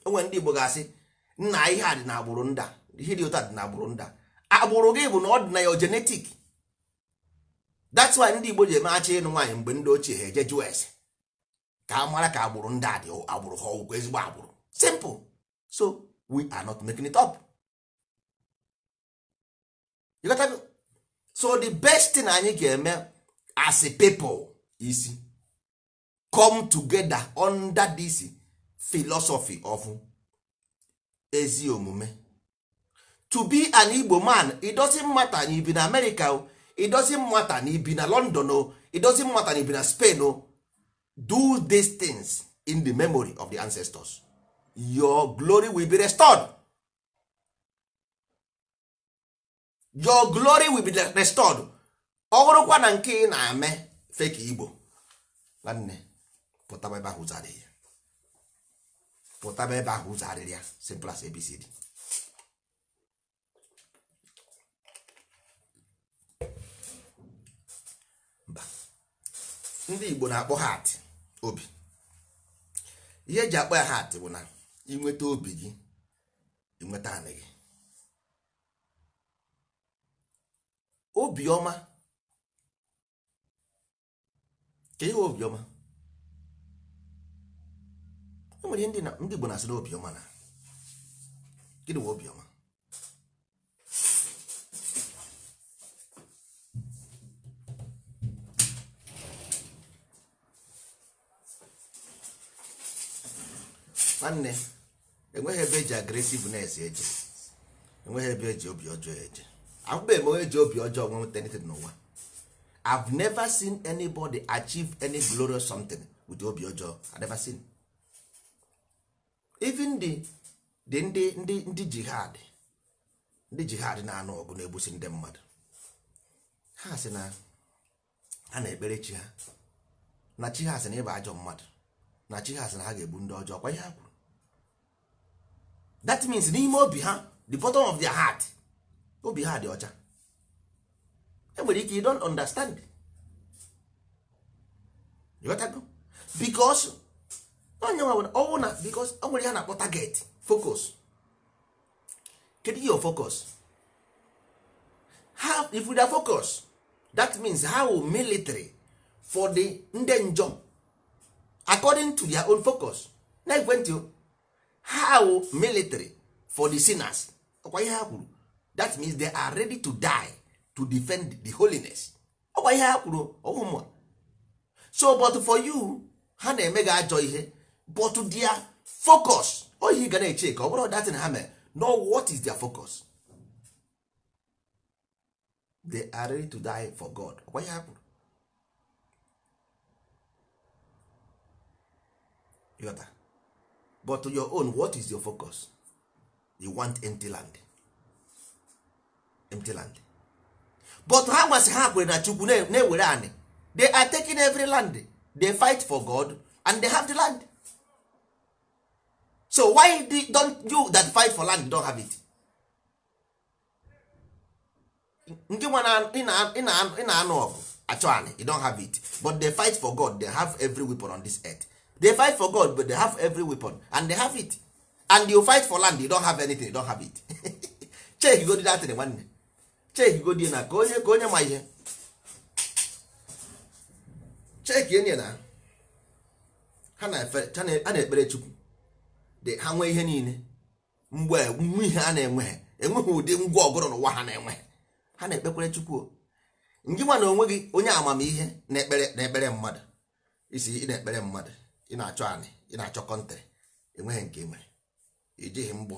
onwe ndị igbo ga-asị nna ihe a dị na agbụrụ nda ihe dị ụta dị na agbụrụ nda agbụrụ gị bụ na ọ dị na ya jenetik that's why ndị igbo ji eme achị ịnụ nwaanyị mgbe ndị ochie ha eje jụọ ese ka a mara ka agbụrụ ndị dị agbụrụ ha ọgwụgwọ ezigbo agbụrụ simple so we are you so the best thing anyị ga-eme as a people is come together under this philosophy of ezi omume to be an Igbo man it doesn't matter na ibi na America it doesn't matter na ibi na London o it doesn't matter na ibi na Spain o do these things in the memory of the ancestors your glory will be restored your glory will be restored ọ bụrụkwa na nke ị na ame fake igbo nwanne pụtaba ebe ahụ zarị ya pụtaba ebe ahụ zarịrị ya simple as abcd ndị igbo na-akpọ hat obi ihe eji akpọ ya hat bụ na inweta obi gị inweta anị gị obioma ka ihe obioma enwere ndị Igbo na-asị na obiọma na gịnị nwe obiọma nwanne enweghị ebe eji agresivnes eje enweghị ebe eji obi ọjọọ eje ahụbeghị eme onye ji obi ọjọọ nweta anything n'ụwa I've never seen anybody achieve any glorious something with obi ọjọọ I've never seen even the the ndị ndị ndị jihad ndị jihad na-anụ ọgụ na-egbusi ndị mmadụ ha si na ha na-ekpere chi ha na chi ha sị na ịba ajọ mmadụ na chi ha sị na ha ga-egbu ndị ọjọọ kwa ihe ha kwuru that means n'ime obi ha the bottom of their heart obi ha dị ọcha enwere ike you don't understand ịghọtago because onye nwere ọnwụ na because o nwere ihe na-akpọ target focus kedu your focus ha we dey focus that means ha how military for the nde njom according to their own focus na ekwentị how military for the sinners ọkwa ihe ha kwuru that means they are ready to die to defend the holiness ọgwa ihe ha kwuru ọwụmụa so but for you ha na-eme gị ajọ ihe but their focus oyi ga na-eche ka ọ bụrụ datin ha mere no what is their focus they are ready to die for god ọgwa ihe ha kwuru but your own what is your focus you want empty land empty land but ha gwasị ha kwere na chukwu na-ewere anị they are taking every land they fight for god and they have the land so why don't you that fight for land don't have it ndị nwa ị na-anụ ọgụ achọ anị you don't have it but they fight for god they have every weapon on this earth they fight for god but they have every weapon and they have it and you fight for land you don't have anything you don't have it check you go do that thing chekigo dị na ka onye ma ihe cheki enye na ha na-ekpere chukwu dị ha nwee ihe niile mgbe nwe ihe a na-enweghị enweghị ụdị ngwa ọgụrụ n'ụwa ha na-enweghị ha na-ekpekwere chukwu ndị nwa na onwe onye amamihe na-ekpere na-ekpere mmadụ isi ị na-ekpere mmadụ ị na-achọ anị ị na-achọ kọntrị enweghị nke nwere ijighị mgbọ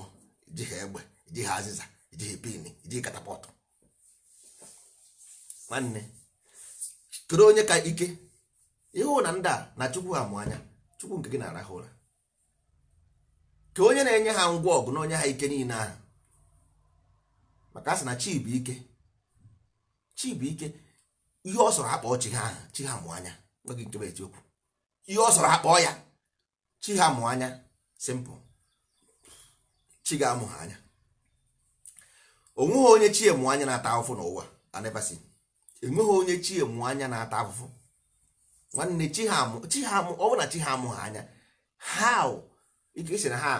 ijighị egbe ijighị azịza ijighị pin ijighị katapọtụ nwanne kedu onye ka ike ịhụ na ndị a na chukwu ha mụ anya chukwu nke gị na-arahụ ụra ka onye na-enye ha ngwa ọgụ na onye ha ike niile ahụ maka asị na chi bụ ike chi bụ ike ihe ọ sọrọ akpọ chi ha ahụ chi ha mụ anya nweghị nke bụ eziokwu ihe ọ sọrọ akpọ ya chi ha mụ anya simpụl chi ga-amụ ha anya onweghị onye chi e mụ anya na-ata ahụfụ n'ụwa anebasi enweghị onye chi mụ anya na-ata afụfụ nwanne chi ha amụ ọ bụ na chi ha amụ anya ha ike esi na ha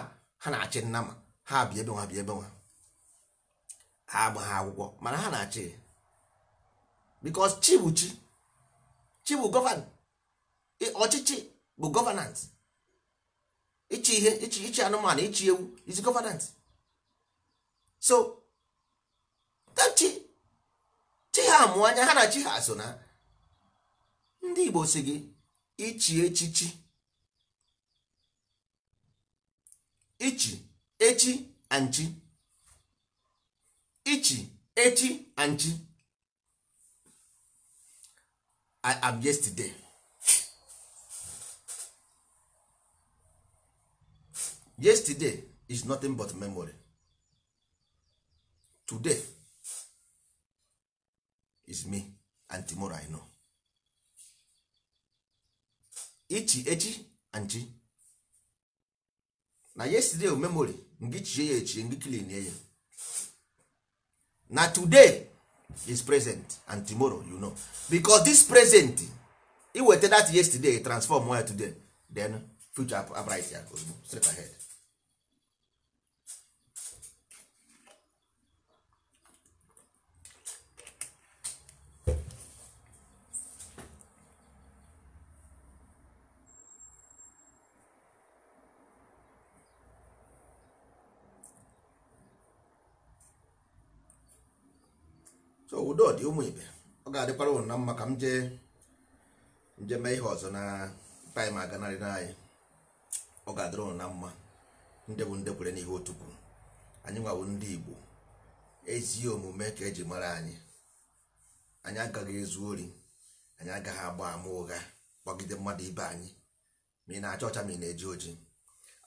ha na-achị nna ma ha bịa ebe nwa bịa ebe nwa ha agba akwụkwọ mana ha na-achị because chi bụ chi chi bụ gọvanọ ọchịchị bụ gọvanans ịchị ihe ịchị anụmanụ ịchị ewu is gọvanans so chi chi ha mụọ anya ha na chi ha so na ndị Igbo si gị ichi echichi ichi echi anchi ichi echi anchi I am yesterday yesterday is nothing but memory today is me and tomorrow I know ichi echi chi na yesterday oh, memory ngị chie ya echi ngị clean ya na today is present and tomorrow you know because this present e weta that yesterday transform ya today then future upright ya ozugbo straight ahead so udo dị ụmụ ibe ọ ga-adịkwara ụnụ na mma ka m jee nje mee ihe ọzọ na taịm aganarị na anyị ọ ga-adịrị ụnụ na mma ndị bụ ndị kwere n'ihe otukwu anyị nwawo ndị Igbo ezi omume ka eji mara anyị anyị agaghị ezu ori anyị agaghị agba ama ụgha kpọgide mmadụ ibe anyị ma ị na-acha ọcha ma ị na-eji oji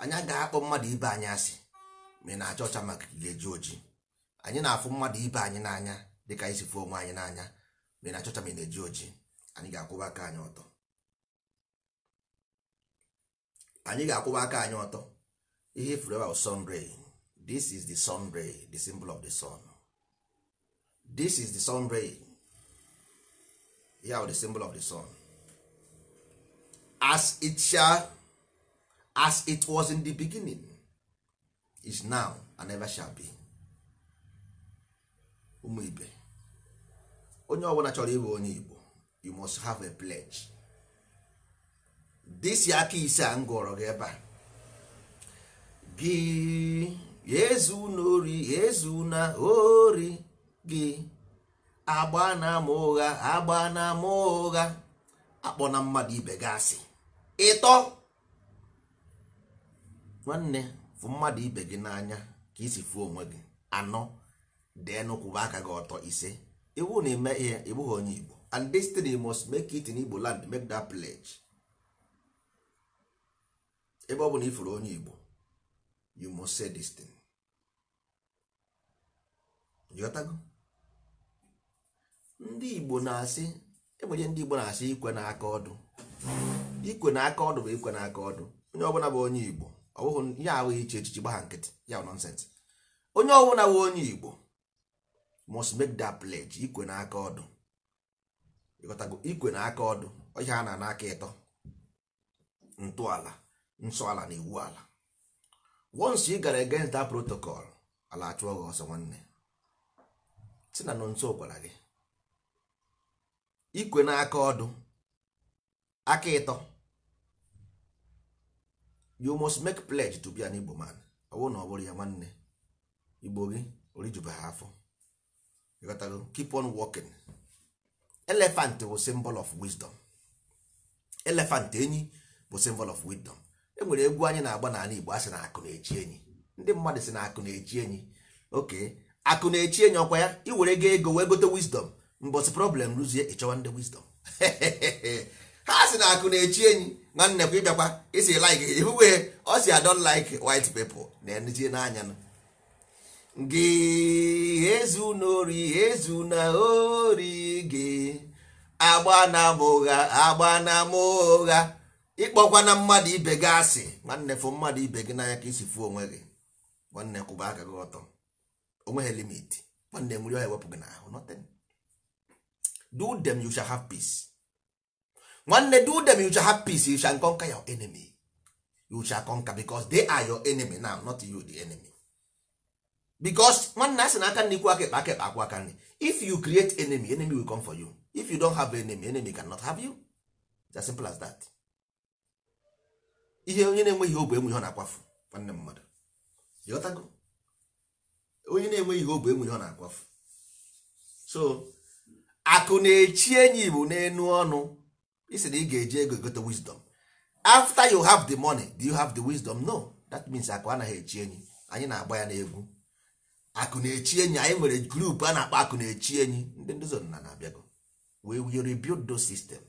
anyị agaghị akpọ mmadụ ibe anyị asị ma ị na-acha ọcha maka ga-eji oji anyị na-afụ mmadụ ibe anyị n'anya dịka anyị si fụ onwe anyị n'anya mere na chọcha mere na-eji ojii anyị ga-akwụba aka anyị ọtọ anyị ga-akwụba aka anyị ọtọ ihe ifuru e ebe sun ray this is the sun ray the symbol of the sun this is the the symbol of the sun as it shall, as it was in the beginning is now and never shall be ụmụ ibe onye ọbụla chọrọ ịbụ onye Igbo you must have a pledge dịsi aka ise a m gụrọ gị ebe a gị ezu na ori ezu na ori gị agba na ama ụgha agba na ama ụgha akpọ na mmadụ ibe gị asị ịtọ nwanne fụ mmadụ ibe gị n'anya ka isi fuo onwe gị anọ dee nụkwụba aka gị ọtọ ise iwu na ime ihe ị bụghị onye Igbo and destiny must make it in Igbo land make that pledge ebe ọ bụ na ifuru onye Igbo you must say this thing ndị Igbo na-asị enwere ndị Igbo na-asị ikwe na aka ọdụ ikwe na aka ọdụ bụ ikwe na aka ọdụ onye ọbụla bụ onye Igbo ọ bụghị ya ahụghị iche echichi gbagha nkịtị ya nọnsensị onye ọbụla bụ onye Igbo must make that pledge ikwe na aka ọdụ ịghọtago ikwe na aka ọdụ ihe a na n'aka ịtọ ntọala nsọ ala na iwu ala once ị gara against that protocol ala achụọ gị ọsọ nwanne si na nọ nso gwara gị ikwe na aka ọdụ aka ịtọ you must make pledge to be an Igbo man ọ bụrụ na ọ bụrụ ya nwanne Igbo gị orijubeghị afọ ịghọtago keep on walking elephant bụ symbol of wisdom elephant enyi bụ symbol of wisdom enwere egwu anyị na-agba n'ala Igbo a si na akụ na-echi enyi ndị mmadụ si na akụ na-echi enyi oke akụ na-echi enyi ọkwa ya iwere go ego wee gote wisdom mbọsị problem rụzie ịchọwa ndị wisdom ha si na akụ na-echi enyi na kwa ịbịakwa isi like ihuwe ọ si adon like white people na-enye n'anya gị ezu n'ori ezu na ori gị agba na ụgha agbana m ụgha ịkpọkwa na mmadụ ibe gị asị nwanne fụ mmadụ ibe gị n'anya ka isi fụ onwe gị nwanne kwụba aka gị ọtọ onwe ha limit nwanne nwere ọhịa wepụ gị n'ahụ nothing do them you shall have peace nwanne do them you shall have peace you shall conquer your enemy you shall conquer because they are your enemy now not you the enemy because nwanne a sị na aka nri kwụ aka ekpe aka ekpe akwụ aka nri if you create enemy enemy will come for you if you don't have enemy enemy cannot have you it's as simple as that ihe onye na-enweghị obu enwe ọ na-akwafu nwanne mmadụ ịghọtago onye na-enweghị obu enwe ọ na-akwafu so akụ na-echi enyi igbo n'enu ọnụ isi na ị ga-eji ego egote wisdom after you have the money do you have the wisdom no that means akụ anaghị echi enyi anyị na-agba ya n'egwu akụ na-echi enyi anyị nwere grupu a na-akpọ akụ na-echi enyi ndị nduzi ọdịnala na-abịago wee we rebuild sistem. system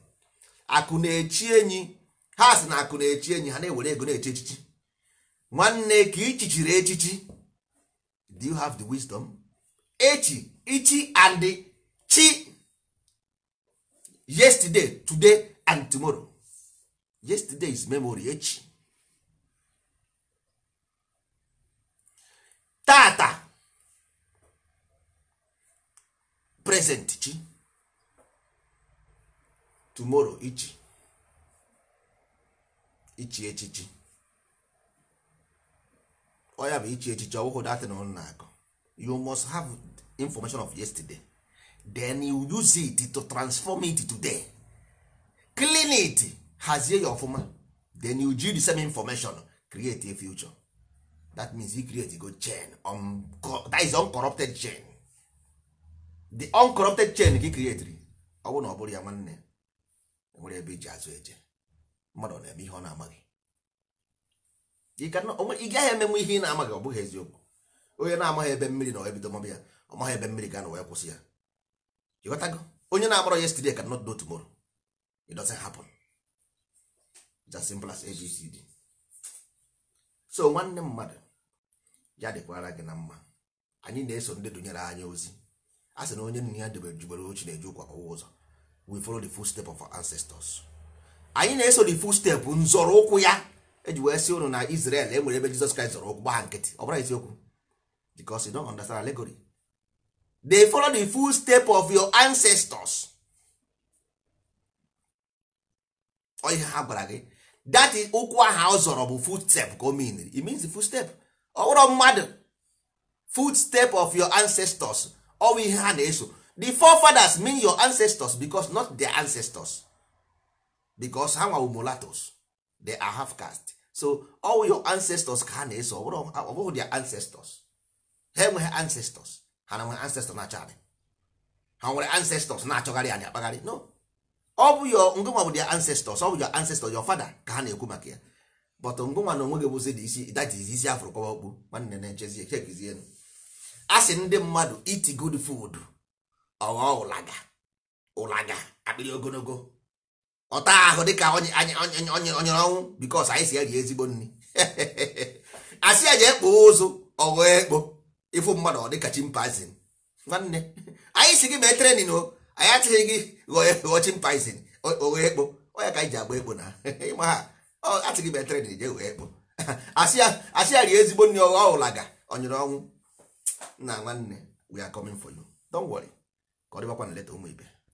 na-echi enyi ha si na akụ na-echi enyi ha na-ewere ego na eche echichi nwanne ka ichichiri echichi do you have the wisdom echi ichi and chi yesterday today and tomorrow yesterday is memory echi tata present chi tomorrow ichi ichi echichi oya bụ ichi echichi ọwụhụ datin ọnụ na-akọ you must have information of yesterday then you use it to transform it today clean it hazie ya ọfụma then you use the same information create a future that means you create a good chain um, that is uncorrupted chain the uncorrupted chain ka ị ọ bụrụ na ọ bụrụ ya nwanne e nwere ebe iji azụ eje mmadụ na-eme ihe ọ na-amaghị ị gaghị emenwe ihe ị na-amaghị ọ bụghị eziokwu onye na-amaghị ebe mmiri na ebido mọbụ ya ọ maghị ebe mmiri ga-anọ wee kwụsị ya ịghọtago onye na akpọrọ yesterday can not do tomorrow it doesn't happen it's as abcd so nwanne mmadụ ya dịkwara gị na mma anyị na-eso ndị dụnyere anya ozi a sị na onye nna ya debere jubere ochi na-eju ụkwa ọwụ ụzọ we follow the footstep of our ancestors anyị na-eso the footstep nzọrọ ụkwụ ya eji wee si ụnụ na Israel e nwere ebe Jizọs Kraịst zọrọ ụkwụ gba nkịtị ọ bụla isiokwu because you don't understand allegory they follow the footstep of your ancestors ọ ihe ha gwara gị that is ụkwụ aha ọ zọrọ bụ footstep ka o mean it means the footstep ọ bụrụ mmadụ footstep of your ancestors ọwụ ihe ha na-eso the forefathers mean your ancestors because not their ancestors because ha nwa mulattoes they are half caste so all your ancestors ka ha na-eso ọ bụghị their ancestors ha enweghị ancestors ha na nwere ancestors na-achọ anyị. ha nwere ancestors na-achọgharị anyị akpagharị no ọ bụ your ngụnwa bụ their ancestors ọ bụ your ancestors your father ka ha na-ekwu maka ya but ngụnwa na onwe gị isi that is isi afụrụ kpọba okpu nwanne na-echezie chekizienu asị ndị mmadụ iti good food ọghọ ụlaga ụlaga akpịrị ogologo ọta ahụ dịka onye ọnwụ bikos anyị si eri ezigbo nri asị ya jee kpoo ụzụ ọghọ ekpo ịfụ mmadụ ọ dịka chimpanzin nwanne anyị si gị mee trenin o anyị achịghị gị ghọọ e, chimpanzin oghe ekpo ọya ka anyị ji agba ekpo na ịma ha achịghị mee trenin jee ghọọ ekpo asị ya rie ezigbo nri ọghọ ụlaga ọnyụrụ ọnwụ nna nwanne we are coming for you don't worry ka ọ dịbakwa na leta ụmụ ibe